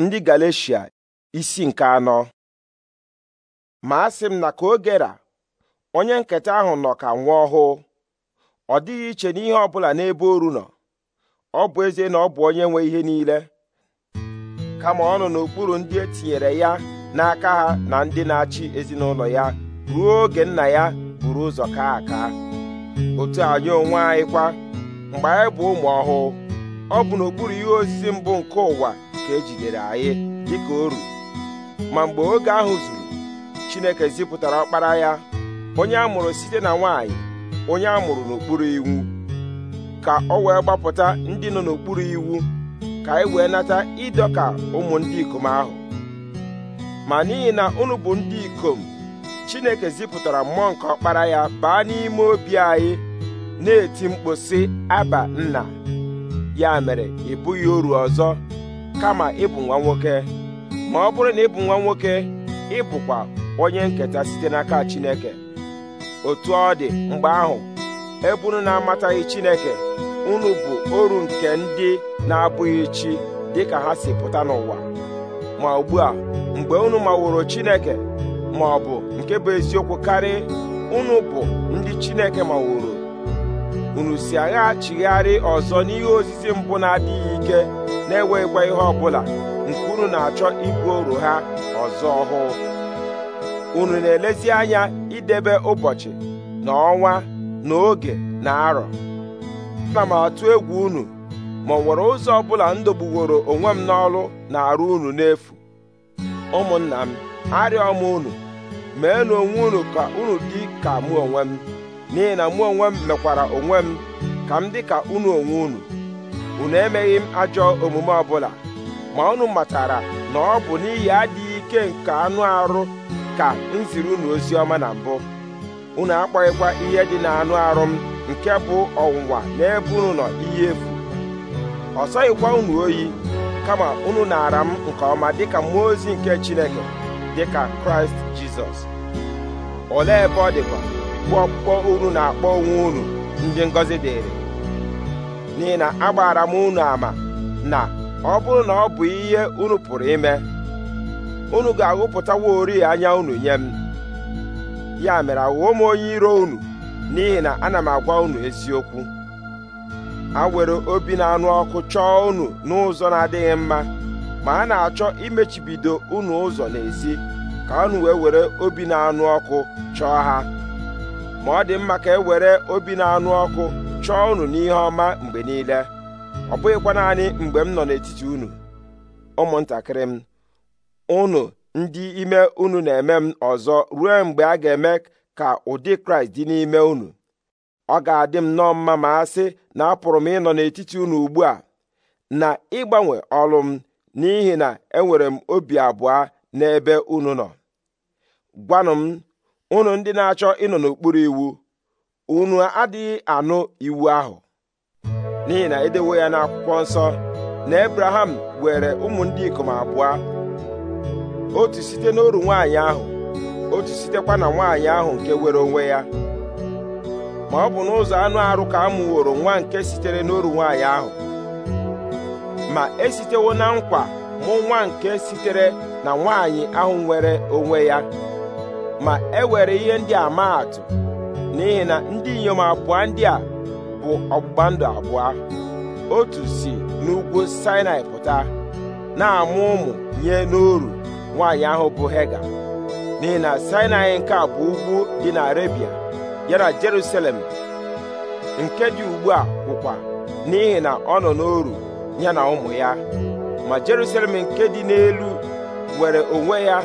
ndị Galeshia isi nke anọ ma asị m na ka ogera onye nketa ahụ nọ ka nwa ọhụụ ọ dịghị iche n'ihe ọ bụla n'ebe oru nọ ọ bụ ezie na ọ bụ onye nwe ihe niile kama ọ nọ n'okpuru ndị etinyere ya n'aka ha na ndị na-achị ezinụlọ ya ruo oge nna ya buru ụzọ kaa aka otu anyị onwe anyị kwa mgbe anyị bụ ụmụ ọhụụ ọ bụ n'okpuru ihe osisi mbụ nke ụwa ka ejidere anyị dịka oru ma mgbe oge ahụ zuru Chineke zipụtara ọkpara ya onye a mụrụ site na nwanyị onye a mụrụ n'okpuru iwu ka ọ wee gbapụta ndị nọ n'okpuru iwu ka anyị e wee nata ịdọka ụmụ ndị ikom ahụ ma n'ihi na unu bụ ndị ikom Chineke zipụtara mmụọ nke ọkpara ya baa n'ime obi anyị na-eti mkpu aba nna ya mere ị bụghị oru ọzọ kama ịbụ nwa nwoke ma ọ bụrụ na ịbụ nwa nwoke ịbụkwa onye nketa site n'aka Chineke otu ọ dị mgbe ahụ ebe na-amataghị Chineke unu bụ oru nke ndị na-abụghị chi dịka ha si pụta n'ụwa ma ugbu a mgbe unu maworo Chineke ma ọ bụ nke bụ eziokwu karị unu bụ ndị Chineke maworo unu si agha chigharị ọzọ n'ihe osisi mbụ na-adịghị ike na-enweghịkwa ihe ọbụla nke unu na-achọ ibu oru ha ọzọ ọhụụ unu na-elezi anya idebe ụbọchị na ọnwa na oge na arọ ana m atụ egwu unu ma ọ nwere ụzọ ọbụla m dọgbuworo onwe m n'ọlụ na-arụ unu n'efu ụmụnna m arịọ m unu na onwe unu ka unu dị ka mụ onwe m n'ihi na mụ onwe m mekwara onwe m ka m dị ka unu onwe unu unu emeghị m ajọ omume ọbụla ma unu matara na ọ bụ n'ihi adịghị ike nke anụ arụ ka m ziri unu ozi ọma na mbụ unu akpọghịkwa ihe dị na anụ arụ m nke bụ ọnwụnwa n'ebe unu nọ ihe efu ọ sọghịkwa unu oyi kama unu n'ara m nke ọma dịka mmụọ ozi nke Chineke dịka Kraịst Jizọs olee ebe ọ dịkwa bụ ọkpụkpọ unu na-akpọ onwe unu ndị ngọzi dịrị n'ihi na agbaara m unu ama na ọ bụrụ na ọ bụ ihe unu pụrụ ime unu ga-aghụpụtaworị anya unu nye m ya mere aghụghọ m onye iro unu n'ihi na ana m agwa unu eziokwu a were obi na-anụ ọkụ chọọ unu n'ụzọ na-adịghị mma ma a na-achọ imechibido unu ụzọ n'ezi ka unu wee were obi na-anụ ọkụ chọọ ha ma ọ dị mma ka e were obi na-anụ ọkụ chọọ unu n'ihe ọma mgbe niile ọ bụghịkwa naanị mgbe m nọ n'etiti unu ụmụntakịrị m unu ndị ime unu na-eme m ọzọ ruo mgbe a ga-eme ka ụdị kraịst dị n'ime unu ọ ga-adị m nọọ mma ma a sị na apụrụ m ịnọ n'etiti unu ugbu a na ịgbanwe ọlụ m n'ihi na enwere m obi abụọ n'ebe unu nọ gwanụ m unu ndị na-achọ ịnọ n'okpuru iwu unu adịghị anụ iwu ahụ n'ihi na edewo ya n'akwụkwọ nsọ na ebraham were ụmụ ndị ikom abụọ otu site n'oru nwaanyị ahụ otu sitekwa na nwaanyị ahụ nke were onwe ya ma ọ bụ n'ụzọ anụ arụ ka a nwa nke sitere n'oru nwaanyị ahụ ma esitewo na nkwa mụ nwa nke sitere na nwaanyị ahụ nwere onwe ya ma e were ihe ndị a maa atụ n'ihi na ndị inyom abụọ ndị a bụ ọgbụgba ndụ abụọ otu si n'ugwu Sinai pụta na-amụ ụmụ nye n'oru nwaanyị ahụ bụ Hega n'ihi na Sinai nke a bụ ugwu dị na Arabia ya na Jerusalem nke dị ugbu a bụkwa n'ihi na ọ nọ n'oru ya na ụmụ ya ma Jerusalem nke dị n'elu nwere onwe ya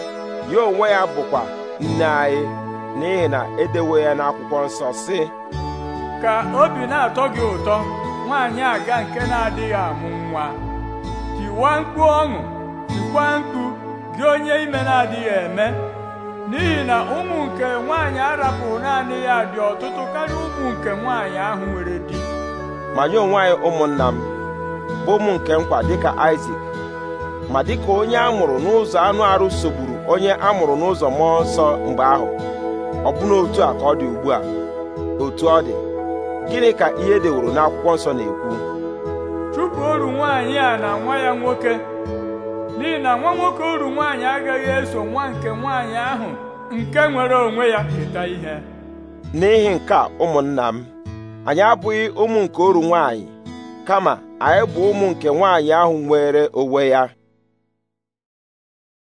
ya onwe ya bụkwa nne anyị n'ihi na edewe ya n'akwụkwọ nsọ si ka obi na-atọ gị ụtọ nwaanyị aga nke na-adịghị amụ nwa tiwa mkpu ọṅụ tikwa mkpu gị onye ime na-adịghị eme n'ihi na ụmụ nke nwaanyị arapụrụ naanị ya dị ọtụtụ karịa ụmụ nke nwaanyị ahụ nwere di ma nye onwe ụmụnna m bụ ụmụ nke nkwa dịka Isaac ma dịka onye a mụrụ n'ụzọ anụ arụ sogburu onye a mụrụ n'ụzọ mmụọ nsọ mgbe ahụ ọbụna otu a ka ọ dị ugbu a otu ọ dị gịnị ka ihe deworo n'akwụkwọ nsọ na-ekwu chụpụ oru nwaanyị a na nwa ya nwoke n'ihi na nwa nwoke oru nwaanyị agaghị eso nwa nke nwaanyị ahụ nke nwere onwe ya keta ihe n'ihi nke a ụmụnna m anyị abụghị ụmụ nke oru nwaanyị kama anyị bụ ụmụ nke nwaanyị ahụ nwere onwe ya